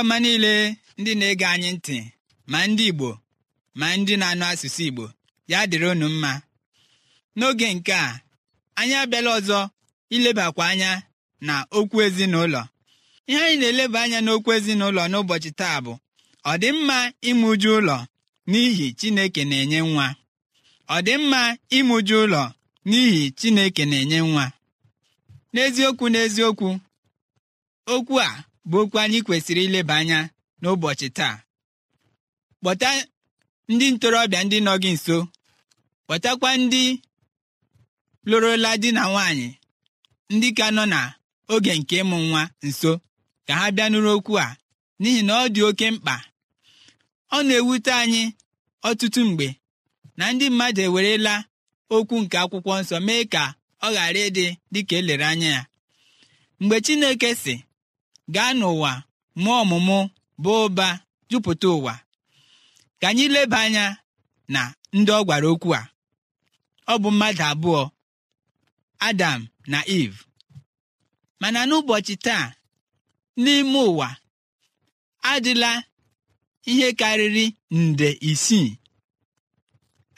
ọma niile ndị na-ege anyị ntị ma ndị Igbo ma ndị na-anụ asụsụ Igbo ya dịrị unu mma n'oge nke a anyị abịala ọzọ ilebakwa anya na okwu ezinụlọ ihe anyị na-eleba anya n'okwu ezinụlọ n'ụbọchị taa bụ ọ ime uju ụlọ n'ihi Chineke na-enye nwa ọ ime ụlọ n'ihi Chineke na-enye nwa n'eziokwu n'eziokwu okwu a bụ okwu anyị kwesịrị ileba anya n'ụbọchị taa kpọta ndị ntorobịa ndị nọ gị nso kpọtakwa ndị lụrụla di na nwaanyị ndị ka nọ na oge nke ịmụ nwa nso ka ha bịa nụrụ okwu a n'ihi na ọ dị oke mkpa ọ na-ewute anyị ọtụtụ mgbe na ndị mmadụ ewerela okwu nke akwụkwọ nsọ mee ka ọ ghara ịdị dịka elere anya ya mgbe Chineke sị gaa n'ụwa mụọ ọmụmụ bụ ụba jupụta ụwa ka anyị leba anya na ndị ọ gwara okwu a ọ bụ mmadụ abụọ Adam na Eve mana n'ụbọchị taa n'ime ụwa adịla ihe karịrị nde isii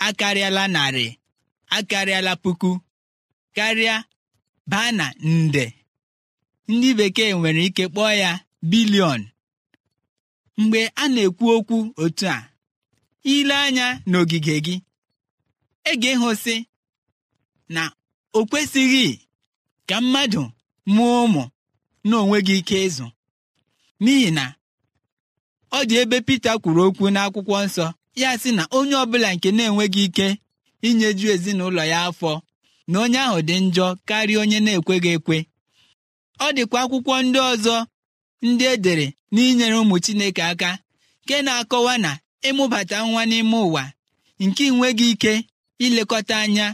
akarịala narị akarịala puku karịa baa na nde ndị bekee nwere ike kpọọ ya bilion mgbe a na-ekwu okwu otu a ile anya n'ogige gị e ga-ịhụsị na o kwesịghị ka mmadụ mụọ ụmụ n'onwe gị ike ịzụ n'ihi na ọ dị ebe Pita kwuru okwu n'akwụkwọ nsọ ya sị na onye ọbụla nke na-enweghị ike inyeju ezinụlọ ya afọ na onye ahụ dị njọ karịa onye na-ekweghị ekwe ọ dịkwa akwụkwọ ndị ọzọ ndị e dere n'inyere ụmụ Chineke aka nke na-akọwa na ịmụbata nwa n'ime ụwa nke nweghị ike ilekọta anya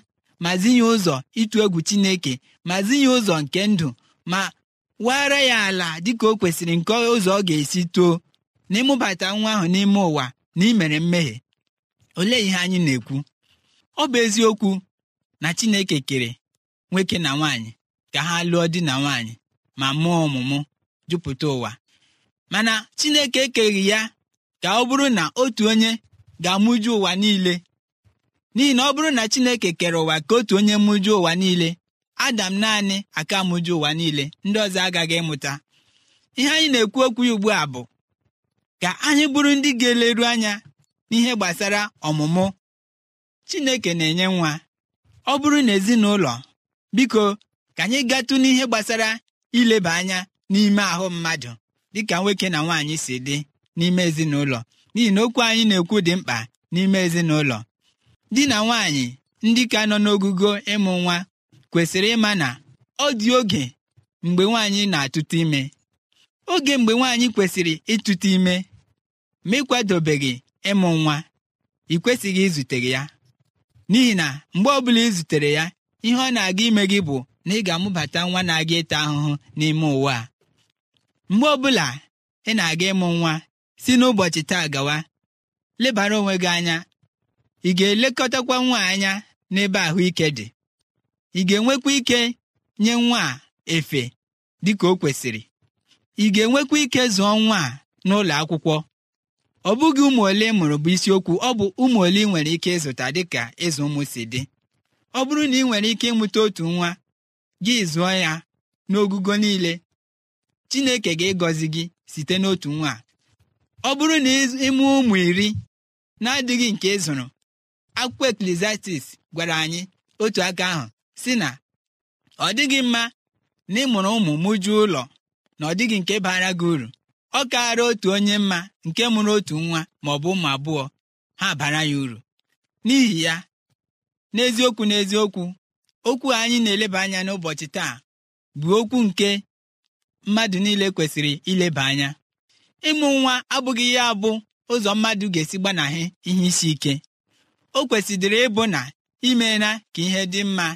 ma zinye ụzọ ịtụ egwu Chineke ma zinye ụzọ nke ndụ ma wara ya ala dịka o kwesịrị nke ụzọ ọ ga-esi too na ịmụbata nwa ahụ n'ime ụwa na imere mmehie olee ihe anyị na-ekwu ọ bụ eziokwu na Chineke kere nwoke na nwaanyị ka ha lụọ di na nwaanyị ma mụọ ọmụmụ jupụta ụwa mana chineke ekeghị ya ka ọ bụrụ na otu onye ga-amụju ụwa niile n'ihi na ọ bụrụ na chineke kere ụwa ka otu onye mụju ụwa niile adam naanị aka mụju ụwa niile ndị ọzọ agaghị ịmụta ihe anyị na-ekwu okwu ugbu a bụ ka anyị bụrụ ndị ga-eleru anya n'ihe gbasara ọmụmụ chineke na-enye nwa ọ bụrụ na biko ka anyị gatụ n'ihe gbasara ileba anya n'ime ahụ mmadụ dịka nwoke na nwaanyị si dị n'ime ezinụlọ n'ihi na okwu anyị na-ekwu dị mkpa n'ime ezinụlọ di na nwaanyị ndị ka nọ n'ogugo ịmụ nwa kwesịrị ịma na ọ dị oge mgbe nwaanyị na atụta ime oge mgbe nwaanyị kwesịrị ịtụta ime ma ịkwadobeghị ịmụ nwa ị kwesịghị izute ya n'ihi na mgbe ọbụla ị zutere ya ihe ọ na-aga ime gị bụ na ị ga-amụbata nwa na-aga ịta ahụhụ n'ime ụwa a mgbe ọbụla ị na-aga ịmụ nwa si n'ụbọchị taa gawa lebara onwe gị anya ị ga-elekọtakwa nwa anya n'ebe ahụike dị ị ga-enwekwa ike nye nwa a efe dị ka o kwesịrị ị ga-enwekwa ike zụọ nwa a n'ụlọ akwụkwọ ọ bụghị ụmụ ole mụrụ bụ isiokwu ọ bụ ụmụ ole ị nwere ike ịzụta dịka ịzụ ụmụ si dị ọ bụrụ na ị nwere ike ịmụta otu nwa gị zụọ ya n'ogugo niile chineke ga egọzi gị site n'otu nwa ọ bụrụ na ịmụ ụmụ iri na-adịghị nke ịzụrụ, zụrụ akwụkwọ eklesiastis gwara anyị otu aka ahụ si na ọ dịghị mma na ịmụrụ ụmụ mụjuo ụlọ na ọ dịghị nke bara gị uru ọ kaara otu onye mma nke mụrụ otu nwa ma ọ bụ ụmụ abụọ ha bara ya uru n'ihi ya n'eziokwu n'eziokwu okwu anyị na-eleba anya n'ụbọchị taa bụ okwu nke mmadụ niile kwesịrị ileba anya ịmụ nwa abụghị ya abụ ụzọ mmadụ ga-esi gbanahị ihe isi ike o kwesịrị ịbụ na imeela ka ihe dị mma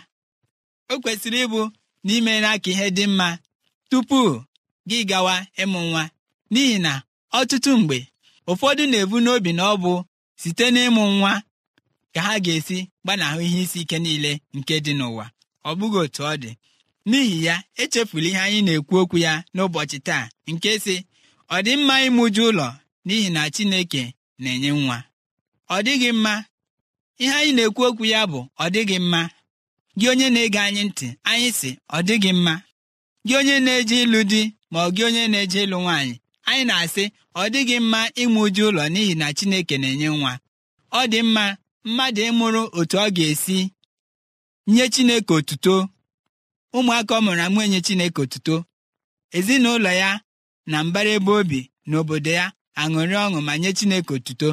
o kwesịrị ịbụ na imeela ka ihe dị mma tupu gị gawa ịmụ nwa n'ihi na ọtụtụ mgbe ụfọdụ na-ebu n'obi na ọ bụ site n'ịmụ nwa ka ha ga-esi gbanahụ ihe isi ike niile nke dị n'ụwa ọ bụghị otu ọ dị n'ihi ya echefula ihe anyị na-ekwu okwu ya n'ụbọchị taa nke si ọ dị mma ịmụju ụlọ n'ihi na Chineke na-enye nwa ọ dịghị mma ihe anyị na-ekwu okwu ya bụ ọ dịghị mma gị onye na-ege anyị ntị anyị sị ọ dịghị mma gị onye na-eje ịlụ di ma ọ gị onye na-eje ịlụ nwaanyị anyị na-asị ọ dịghị mma ịmụ ụlọ n'ihi na Chineke na-enye nwa ọ dị mma mmadụ ịmụrụ otu ọ ga-esi nye Chineke otuto ụmụaka ọ mụrụ amụ enye Chineke otuto ezinụlọ ya na mbara ebe obi na obodo ya aṅụrị ọṅụ ma nye Chineke otuto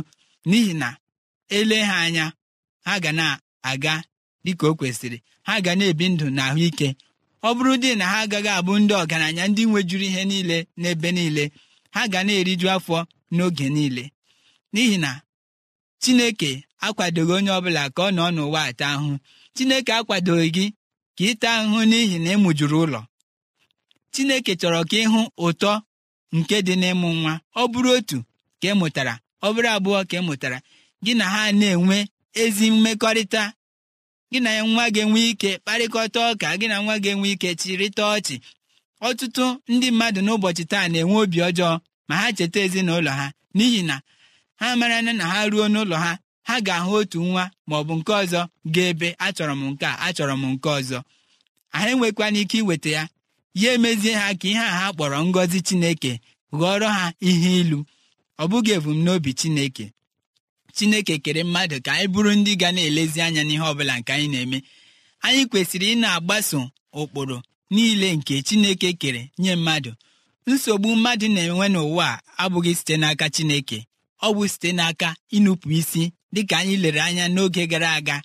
n'ihi na ele ha anya ha ga na-aga dịka o kwesịrị ha ga na-ebi ndụ na ahụike ọ bụrụ dị na ha agaghị abụ ndị ọgaranya ndị nwejuru ihe niile n'ebe niile ha ga na-eriju afọ n'oge niile n'ihi na Chineke akwadoghị onye ọbụla ka ọ nọ n'ụwa ata ahụhụ chineke akwadoghị gị ka ịta ahụhụ n'ihi na ịmụjuru ụlọ chineke chọrọ ka ịhụ ụtọ nke dị n'ịmụ nwa ọ bụrụ otu ka ị mụtara ọ bụrụ abụọ ka ị mụtara gị na ha na-enwe ezi mmekọrịta gị na nwa ga enwe ike kparịkọta ọka gị na nwa ga enwe ike chịrịta ọchị ọtụtụ ndị mmadụ n'ụbọchị taa na-enwe obi ọjọọ ma ha cheta ezinụlọ ha n'ihi na ha mara na ha ruo n'ụlọ ha ha ga-ahụ otu nwa bụ nke ọzọ ga-ebe achọrọ m nke a achọrọ m nke ọzọ anyị enwekwana ike iweta ya ya emezie ha ka ihe a ha kpọrọ ngọzi chineke ghọrọ ha ihe ilu ọ bụghị ebumnobi chineke chineke kere mmadụ ka anyị bụrụ ndị ga na-elezi anya n'ihe ọbụla nke anyị na-eme anyị kwesịrị ị na-agbaso ụkpụrụ niile nke chineke kere nye mmadụ nsogbu mmadụ na-enwe n'ụwa abụghị site n'aka chineke ọ bụ site n'aka ịnụpụ isi dịka anyị lere anya n'oge gara aga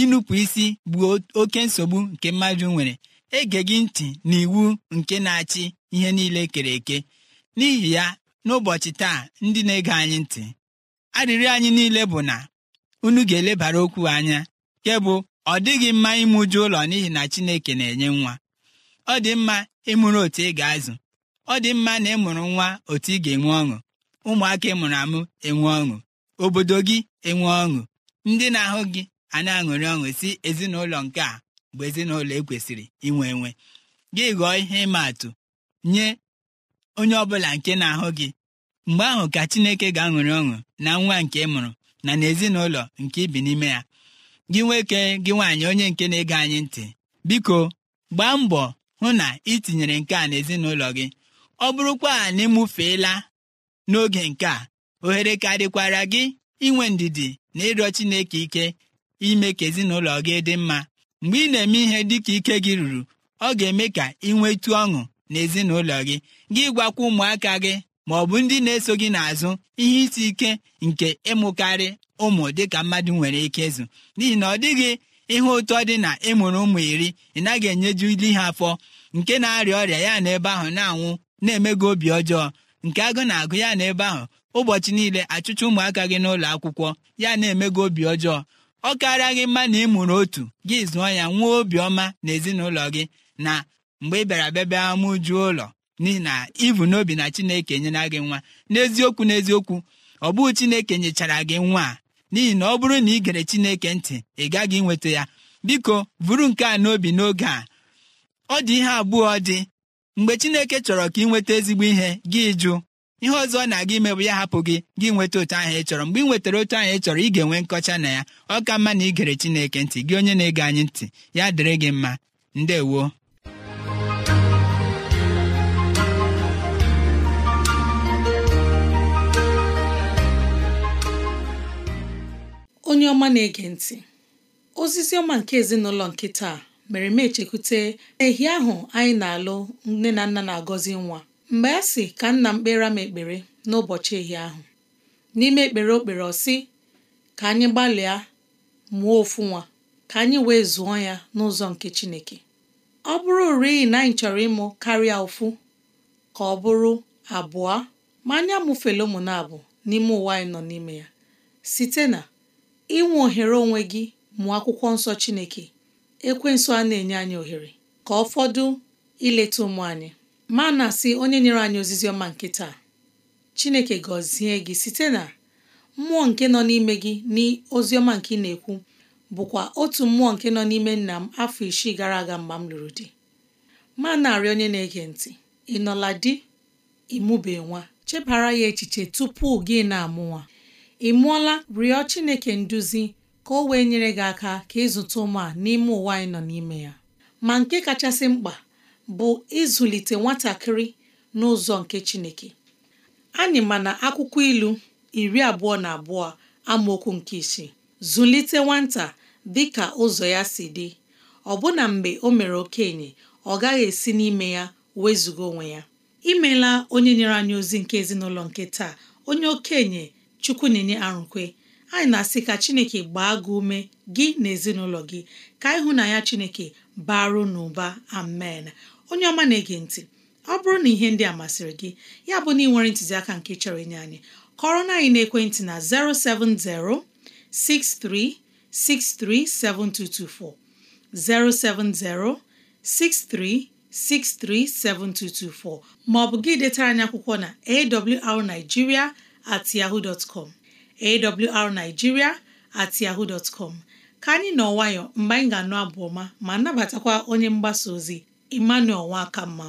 ịnụpụ isi bụ oke nsogbu nke mmadụ nwere ege gị ntị na iwu nke na-achị ihe niile kere eke n'ihi ya n'ụbọchị taa ndị na-ege anyị ntị arịrịọ anyị niile bụ na unu ga-elebara okwu anya nke bụ ọ dịghị mma ịmụju ụlọ n'ihi na Chineke na-enye nwa ọ dị mma ịmụrụ otu ị ga-azụ ọ dị mma na ịmụrụ nwa otu ị ga-enwe ọṅụ ụmụaka ịmụrụ amụ enwe ọṅụ obodo gị enwe ọṅụ ndị na-ahụ gị a na-aṅụrị ọṅụ si ezinụlọ nke a bụ ezinụlọ ekwesịrị inwe enwe gị ghọọ ihe ịma atụ nye onye ọbụla nke na-ahụ gị mgbe ahụ ka chineke ga-aṅụrị ọṅụ na nwa nke ị mụrụ na n'ezinụlọ nke ibi n'ime ya gị nwoke gị nwaanyị onye nke na-ege anyị ntị biko gbaa mbọ hụ na ị tinyere nke a n'ezinụlọ gị ọ bụrụkwa na ịmụfeela n'oge nke a ohere karịkwara gị inwe ndidi na ịrịọ chineke ike ime ka ezinụlọ gị dị mma mgbe ị na-eme ihe dịka ike gị ruru ọ ga-eme ka ị nwetu ọṅụ na ezinụlọ gị gị gwakwa ụmụaka gị ma ọ bụ ndị na-eso gị n'azụ ihe isi ike nke ịmụkarị ụmụ dịka mmadụ nwere ike ịzụ n'ihi na ọ dịghị ihe ụtọ dị na ịmụrụ ụmụ iri ị naghị enyeju ili ha afọ nke na-arịa ọrịa ya na ebe ahụ na-anwụ na emego obi ọjọọ nke agụ na-agụ ya na ebe ahụ ụbọchị niile achụcha ụmụaka gị n'ụlọ akwụkwọ ya na-eme gị obi ọjọọ ọ karịa gị mma na ị mụrụ otu gị zụọ ya nwee obiọma na ezinụlọ gị na mgbe ị bịara bịa bịa ụlọ n'ihi na ibu n'obi na chineke enyela gị nwa n'eziokwu n'eziokwu ọ bụghị chineke nyechara gị nwa a n'ihi na ọ bụrụ na ị gere chineke ntị ị gaghị nweta ya biko buru nke a n'obi n'oge a ọ dị ihe abụọ dị mgbe chineke chọrọ ka ị nweta ezigbo ihe gị jụ ihe ọzọ ọ na-aga ime bụ ya hapụ gị gị nweta otu ahụ ị chọrọ mgbe ị nwetara otu ahụ ị chọrọ ị ga-enwe nkọcha na ya ọ ka mma na ị gere Chineke ntị gị onye na-ege anyị ntị ya dịrị gị mma ndewo onye ọma na-ege ntị ozizi ọma nke ezinụlọ nke taa mere m echekwute ehi ahụ anyị na-alụ nne na nna na-agọzi nwa mgbe a sị ka nna m kpere m ekpere n'ụbọchị ehi ahụ n'ime ekpere okpere kpere ọ sị ka anyị gbalịa mụọ ofu nwa ka anyị wee zụọ ya n'ụzọ nke Chineke ọ bụrụ rịị na anyị chọrọ ịmụ karịa ofu ka ọ bụrụ abụọ ma anyị amụfela ụmụ na-abụ n'ime ụwa anyị nọ n'ime ya site na inwe ohere onwe gị mụọ akwụkwọ nsọ Chineke ekwensu a na-enye anyị ohere ka ọ fọdụ ileta ụmụ anyị ma na-asị onye nyere anyị ozizi ọma nke taa Chineke gọzie gị site na mmụọ nke nọ n'ime gị na nke ị na-ekwu bụkwa otu mmụọ nke nọ n'ime nna m afọ isii gara aga mgbe m lụrụ di ma na-arị onye na-ege ntị ị nọla di ịmụbe nwa chebara ya echiche tupu gị na-amụ nwa ị mụọla rịọ Chineke nduzi ka o wee nyere gị aka ka ịzụta ụmụ a n'ime ụwa anyị nọ n'ime ya ma nke kachasị mkpa bụ ịzụlite nwatakịrị n'ụzọ nke Chineke anyị ma na akwụkwọ ilu iri abụọ na abụọ amaokwu nke isi zụlite nwata dị ka ụzọ ya si dị ọbụna mgbe o mere okenye ọ gaghị esi n'ime ya wezuga onwe ya imela onye nyere anyị ozi nke ezinụlọ nke taa onye okenye Chukwunenye Arụkwe anyị na-asị ka chineke gbaa gị ume gị na ezinụlọ gị ka na ya chineke baru n'ụba amen onye ọma na-ege ntị ọ bụrụ na ihe ndị a masịrị gị ya bụ na ị nwere ntụziaka nke chọrọ inye anyị kọrọ na anyị na-ekwentị na 07063637224 07063637224 ma ọ bụ gị detara anyị akwụkwọ na awrnigeria at yahoo dot com awrnigeria at yahoo ka anyị nọ nwayọ mgbe anyị ga-anụ abụ ọma ma nabatakwa onye mgbasa ozi Emmanuel Mma.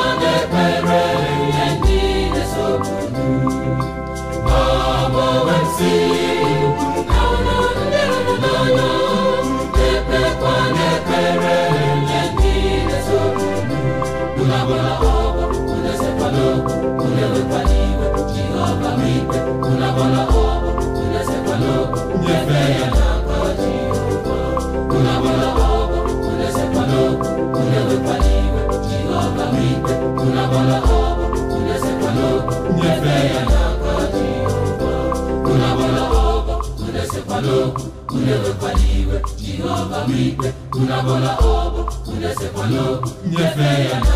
ikpe unu abụla ọbụ unu esekwana okwu nyefe ya na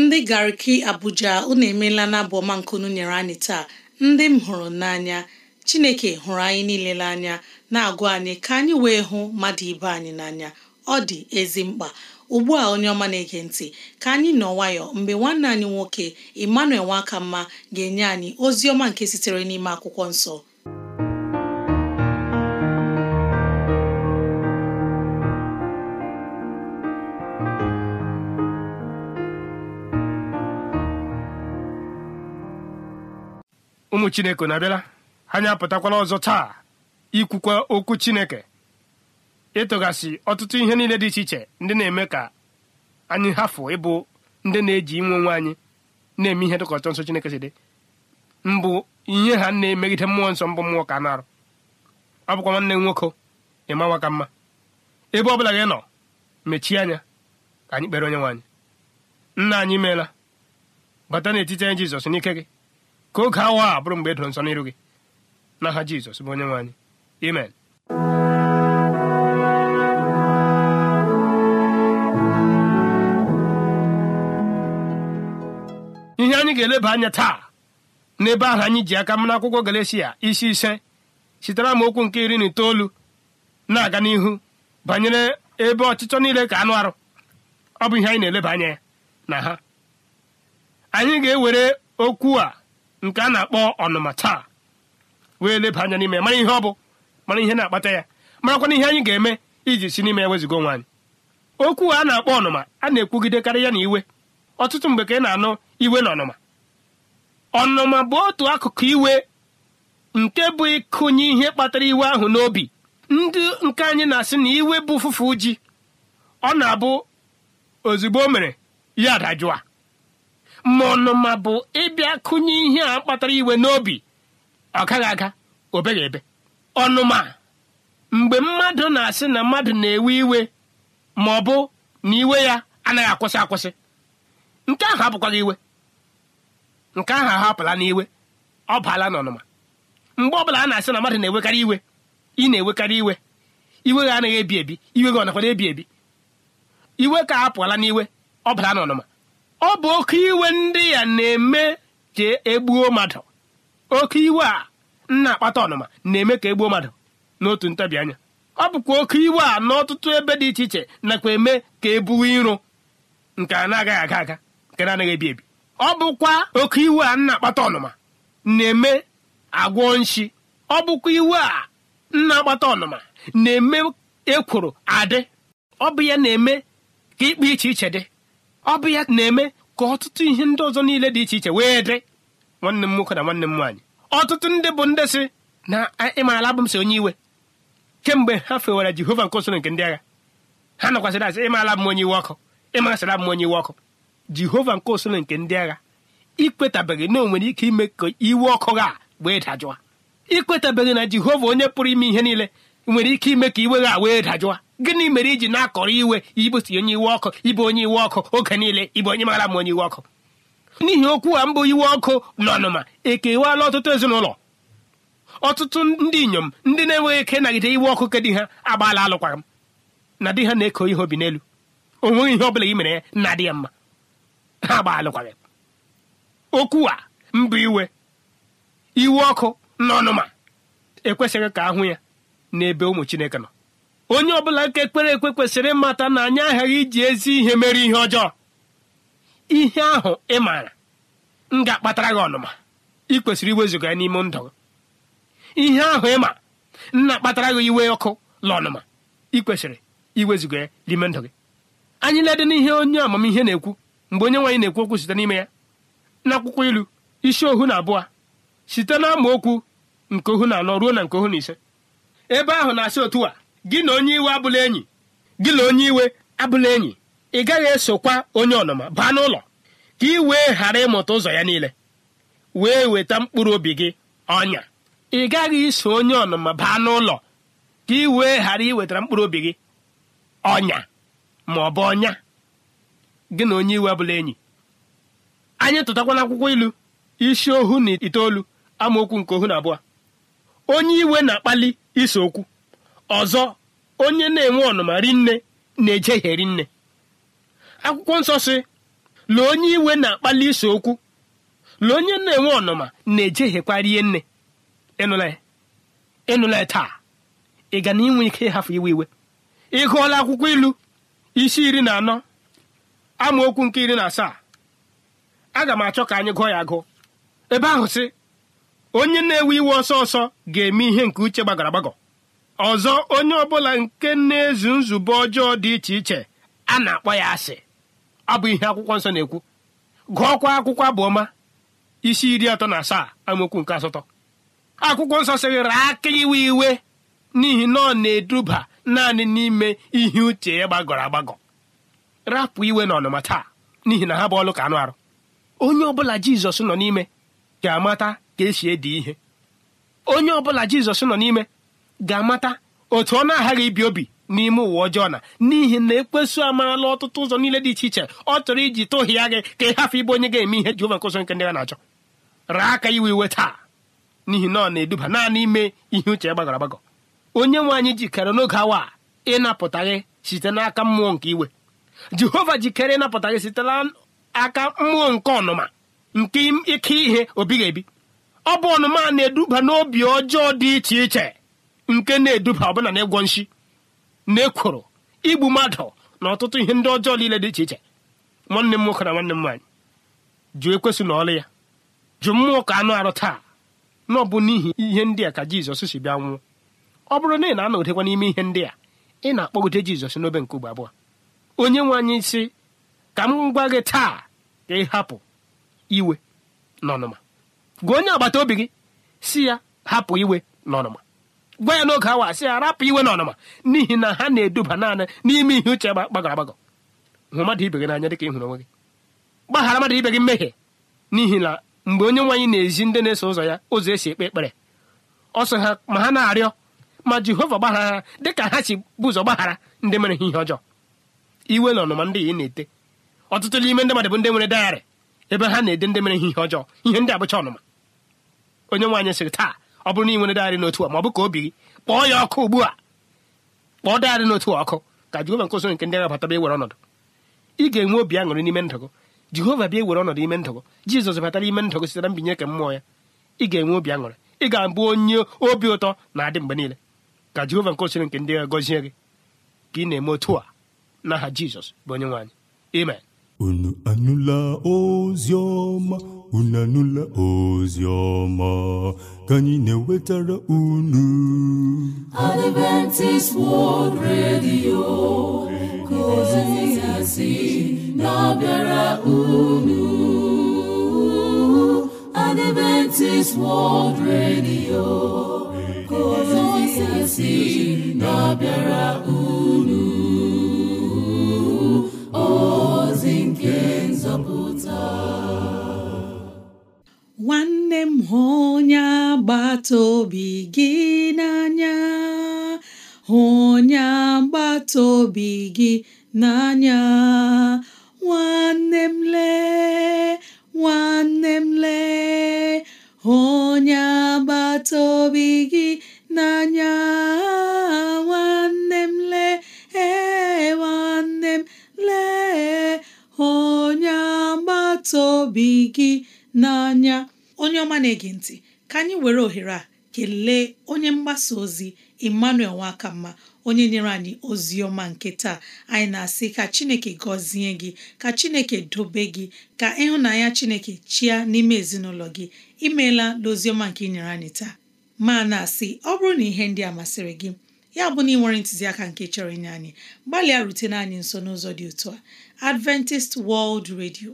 ndị gariki Abuja unu emeela n'abụ ọma nke unu nyere anyị taa ndị m hụrụ n'anya Chineke hụrụ anyị niile n'anya na agụ anyị ka anyị wee hụ mmadụ ibe anyị n'anya ọ dị ezi mkpa ugbu a onye ọma na-ege ntị ka anyị nọ nwayọ mgbe nwanne anyị nwoke Emmanuel mma ga-enye anyị ozi ọma nke sitere n'ime akwụkwọ nsọ ụmụ chineke na-abịala anya apụtakwala ọzọ taa ikwukwa okwu chineke ịtụgasị ọtụtụ ihe niile dị iche iche ndị na-eme ka anyị hafụ ịbụ ndị na-eji inwe onwe anyị na-eme ihe dịka ọchọ nsọ chineke si dị mbụ ihe ha na-emegide mmụọ nsọ mbụ mmụọ ka na-arụ ọ bụkwa nwanne m nwoke ịma ka mma ebe ọ bụla gị nọ mechie anya ka anyị kpere onye nwaanyị nna anyị meela bata n'etiti anyị jizọs n'ike gị ka oge awa a bụrụ mgbe edoro nsọ n'iru gị n'aha Jizọs bụ onye nwe anyị amen ihe anyị ga-eleba anya taa n'ebe ahụ anyị ji aka m n'akwụkwọ Galatia isi ise sitere m okwu nke iri na itoolu na-aga n'ihu banyere ebe ọchịchọ niile ka anụ arụ ọ bụ ihe anyị na-eleba anya na ha anyị ga-ewere okwu a nke a na-akpọ ọnụma taa wee leba anya n'ime mara ihe ọ bụ mara ihe na-akpata ya marakwana ihe anyị ga-eme iji si n'ime ewezigo nwaanyị okwu a na-akpọ ọnụma a na-ekwugidekarị ya na iwe ọtụtụ mgbe ka ị na-anụ iwe na ọnụma ọnụma bụ otu akụkụ iwe nke bụ ịkụnye ihe kpatara iwe ahụ n'obi ndị nke anyị na-asị na iwe bụ ụfụfụ ji ọ na-abụ ozugbo o mere ya adajụa ma ọnụma bụ ịbịa kụnye ihe a kpatara iwe n'obi ọ gaghị aga obeghị ebe ọnụma mgbe mmadụ na-asị na mmadụ na-ewe iwe ma ọ bụ na iwe ya anaghị akwụsị akwụsị nke ahụ abụkwaghị iwe nke ahụ ahapụla n'iwe ọ baala n'ọnụma mgbe ọbụla a na-asị na mmadụ na-ewekarị iwe ị na-ewekarị iwe iwe gị anaghị ebi ebi iwe gị ọ nakwara ebi ebi iwe ka a n'iwe ọ bala n'ọnụma ọ bụ oke iwe ndị ya na-eme ka egbuo mmadụ oke iwe a nna akpata ọnụma na-eme ka egbuo mmadụ n'otu ntabi anya ọ bụkwa oke iwe a n'ọtụtụ ebe dị iche iche nakwa eme ka ebuo iro nke a na-agaghị aga aga nke na-anaghị ebi ebi ọ bụkwa oke iwe a nna akpata ọnụma na-eme agwọ nshi ọ bụkwa iwe a nna akpata ọnụma na-eme ekworo adị ọ bụ ya na-eme ka ịkpa iche iche dị ọ bụ ya na-eme ka ọtụtụ ihe ndị ọzọ niile dị iche iche wee dị nwanne m nwoke na nwanne m nwaanyị ọtụtụ ndị bụ ndị sị na ịmaala abụm m si onye iwe kemgbe ha fewara jehova nke osoro nke ndị agha ha nakwasịrị asị ịmaala m onye iwe ọkụ ịmasịrị abụ m onye iwe ọkụ jehova nke osoro nke ndị agha ikwetabeghị na o nwere ike ime ka iwe ọkụ gha a wee dajụa ikwetabeghị na jehova onye pụrụ ime ihe niile nwere ike ime ka iwe gha wee dajụwa gịnị mere iji na-akọrọ iwe ibusi onye iwe ọkụ ibe onye iwe ọkụ oge niile ibu onye mara ma onye iwe ọkụ n'ihi okwu a mbụ iwe ọkụ na ọnụma ekewala ọtụtụ ezinụlọ ọtụtụ ndị inyom ndị na-enweghị ike nagide iwe ọkụ ke di ha agbaala alụkwaghị m na di ha na-eko ihe obi n'elu o ihe ọ bụla gị mere ya na-adị ya mma ha agba alụkwaghị okwu a mbụ iwe iwe ọkụ na ọnụma ekwesịghị ka ahụ ya n'ebe ụmụ chineke nọ onye ọbụla nke ekpere ekwe kwesịrị ịmata na anyị aghaghị iji ezi ihe mere ihe ọjọọ ihe ahụ ị maara m ga-akpatara gị ọnụma ị kwesịrị iwezụga ya n'ime ndụ ihe ahụ ị nna akpatara gị iwe ọkụ la ọnụma ị kwesịrị iwezụga ya n'ime ndụ gị anyị na-ede n'ihe onye amamihe na-ekwu mgbe onye nwaanyị na-ekwu okwu site n'ime ya n'akwụkwọ ilu isi ohu na abụọ site na amaokwu nke ohu na anọ ruo na nke ohu na ise ebe ahụ na-asị otu a gị na onye iwe abụla enyi gị na onye iwe abụla enyi ị gaghị esokwa onye ọnụma baa n'ụlọ ka ị wee ghara ịmụta ụzọ ya niile wee weta mkpụrụ obi gị ọnya ị gaghị iso onye ọnụma baa n'ụlọ ka ị wee ghara iwetara mkpụrụ obi gị ọnya ma ọ bụ ọnya gị na onye iwe abụla enyi anyị tụtakwana akwụkwọ ilu isi ohu na itoolu amaokwu nke ohu na abụọ onye iwe na-akpali ise okwu ọzọ onye na-enwe ọnụma ri nne na-ejeheri nne akwụkwọ nsọ si lee onye iwe na-akpali ise okwu lee onye na-enwe ọnụma na ihe nne ịnụla ya taa ị ga na inwe ike ịhafụ iwe iwe ị gụọla akwụkwọ ilu isi iri na anọ amaokwu nke iri na asaa aga m achọ ka anyị gụọ ya gụọ. ebe ahụ sị onye na-ewe iwe ọsọ ọsọ ga-eme ihe nke uche gbagọrọ ọzọ onye ọbụla nke na-ezu nzube ọjọọ dị iche iche a na-akpọ ya asị ọ bụ ihe akwụkwọ nsọ na-ekwu gụọkwa akwụkwọ abụọma isi iri atọ na asaa amaokwu nke asatọ akwụkwọ nsọ sịrịrị aka iwe iwe n'ihi na ọ na-eduba naanị n'ime ihe uche ya gbagọrọ agbagọ rapụ iwe na ọnụma taa n'ihi na ha bụ ọlụ ka anụ arụ onye ọbụla jizọs nọ n'ime ga-amata ka esi ede ihe onye ọbụla jizọs nọ n'ime ga-amata otu ọ na-aghaghị ibi obi n'ime ụwa ọjọọ na n'ihi na ekpesu amarala ọtụtụ ụzọ niile dị iche iche ọ chọrọ iji tụhịa gị ka ị hafụ ịbụ onye ga-eme ihe Jehova nke ụzọ nke ndị ya na-achọ raa aka iwe iwe taa n'ihi na ọ na-eduba naanị ime ihe uche gbagọrọ agbagọ onye nwe anyị jikere n'oge awa ịnapụta gị site n'aka mmụọ nke iwe Jehova jikere ịnapụta gị site n'aka mmụọ nke ọnụma nke ike ihe obi ga-ebi ọ bụ ọnụma na-eduba n'obi ọjọọ dị iche iche nke na-eduba ọbụna na ịgwọ nshi na ekworo igbu mmadụ na ọtụtụ ihe ndị ọjọọ niile dị iche iche nwanne m nwoke na nwanne m nwaanyị jụ ekwesị na ọlụ ya jụ mmụọ ka anụ arụ taa na n'ihi ihe ndị a ka jizọs si bịa nwụọ ọ bụrụ na ị na anọdekwa n'ime ihe ndị a ị na-akpọgide jizọs n'obe nke ugbo abụọ onye nwe anyị si ka m gwa gị taa ka ị hapụ iwe na ọnụma gwa onye agbata obi gị si ya hapụ iwe n'ọnụma gwa ya n'oge awa sị ya rapụ iwe n'ọnụma n'ihi na ha na-eduba naanị n'ime ihe uche gbagọrọ agbagọ hụ mmadụ ibe gị n'anya dịka ị hụrụ onwe gị gbaghara mmadụ ibe gị mmehie n'ihi na mgbe onye nwaanyị na-ezi ndị na-eso ụzọ ya ụzọ esi ekpe ekpere ọ ha ma ha na-arịọ ma jehova gbaghara ha ka ha si bụ ụzọ gbaghara ndị mere ha ihe ọjọọ iwe na ọnụma ndị ị na-ete ọtụtụ n'ime ndị mmadụ bụ ndị nwere dayarị ebe ha na-ede ndị mere ha ihe ọjọọ ihe ndị abụcha ọnụma onye nwaanyị sịrị taa ọ bụrụ na ị nwere dịgharị n'otu a ma ọ bụ ka obi gị kpọọ ya ọkụ ugbu a kpọọ dịgharị n'otu a ọkụ ka jehova nke usoro nke ndị agha ewere ọnọdụ ị ga-enwe obi aṅụrị n'ime ndụ gị jehova bịa ewere ọnọdụ ime ndụ gị jizọs batara ime ndụ gị sitere mbinye nke mmụọ ya ị ga-enwe obi aṅụrị ị ga-abụ onye obi ụtọ na-adị mgbe niile ka jehova nke usoro nke ndị agha gọzie gị ka ị na-eme otu a n'aha jizọs bụ onye nwaanyị amen unu anụla ozi ọma unu anụla ozi ọma ka anyị na-ewetara unu Adventist World Radio ka ozi ya si na-abịara unu Adventist World Radio ka ozi ya na-abịara unu m hụ onye agbata obi gị n'anya hụ onye agbata obi gị n'anya nwanne m lee nwanne m lee hụ onye agbata obi gị n'anya nwanne m lee ee nwanne m lee onye agbata gị n'anya onye ọma na-ege ntị ka anyị were ohere a kelee onye mgbasa ozi Emmanuel Nwakamma onye nyere anyị ozi ọma nke taa anyị na-asị ka Chineke gọzie gị ka Chineke dobe gị ka ịhụnanya Chineke chịa n'ime ezinụlọ gị imeela n'oziọma nke ị nyere anyị taa ma na-asị ọ bụrụ na ihe ndị a masịrị gị ya bụ na ị nwere ntụziaka nke chọrọ inye anyị gbalịa rutena anyị nso n'ụzọ dị otu a Adventist World redio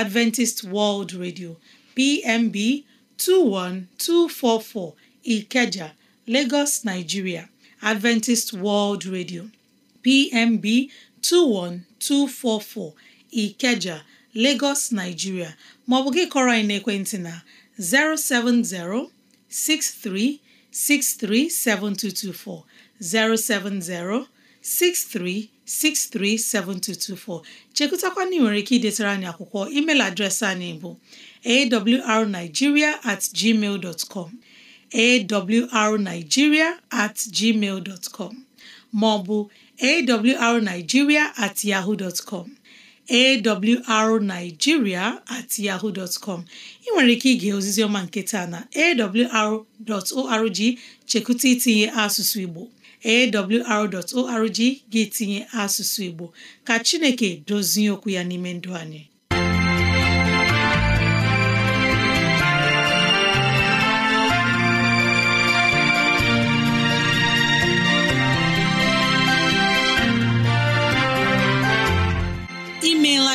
Adventist World Radio PMB 21244 Ikeja, Lagos, Nigeria; Adventist World Radio PMB 21244 Ikeja, Lagos, Nigeria ma ọ bụ gị kọrọ anyị n'ekwentị na 070 6363 7224 070 6363 7224 chekụtakwana ị nwere ike idetara anyị akwụkwọ email adreesị anyị bụ awrnigeria at gmail com awrnigeria at gmail com maọbụ awrnigeria at yahoo dot com awrnigeria at yahoo com ị nwere ike ige ozizioma ọma nke taa na awr.org chekwụta itinye asụsụ Igbo awr.org gị tinye asụsụ Igbo ka Chineke dozie okwu ya n'ime ndụ anyị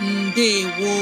ndewo